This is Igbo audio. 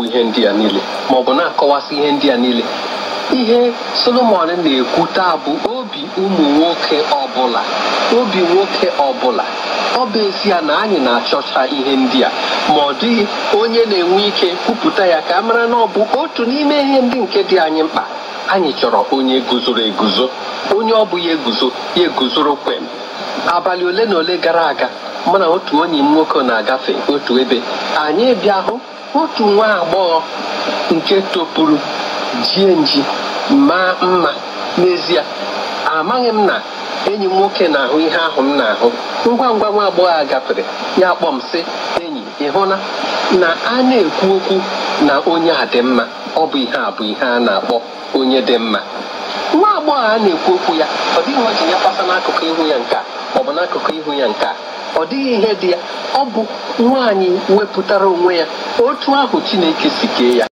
na-ekwu ihe ndị a niile ma ọ bụ na-akọwasị ihe ndị a niile ihe solomon na-ekwu taa bụ obi ụmụ nwoke ọbụla obi nwoke ọbụla ọ bụ ezi na anyị na-achọcha ihe ndị a ma ọ dịghị onye na-enwe ike kwupụta ya ka a mara na ọ bụ otu n'ime ihe ndị nke dị anyị mkpa anyị chọrọ onye guzoro eguzo onye ọ bụ ya eguzo ya eguzoro kwem abalị ole na ole gara aga mana otu onye m nwoke na-agafe otu ebe anyị bịa hụ otu nwa agbọghọ nke topuru jie nji maa mma n'ezie amaghị m na enyi m nwoke na-ahụ ihe ahụ m na-ahụ ngwa ngwa nwa agbọghọ a gafere ya kpọm m sị enyi ị na a na-ekwu okwu na onye a dị mma ọ bụ ihe a bụ ihe a na-akpọ onye dị mma nwa agbọghọ a na-ekwu okwu ya ọ dịghị ya kpasa n'akụkụ ihu ya ọ bụ n'akụkụ ihu ya nke ọ dịghị ihe dị ya ọ bụ nwaanyị wepụtara onwe ya otu ahụ Chineke si kee ya